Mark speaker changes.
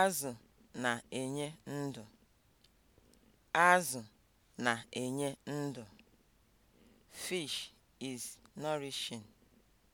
Speaker 1: Azụ na-enye ndụ. Azụ na-enye ndụ. Fish is nourishing.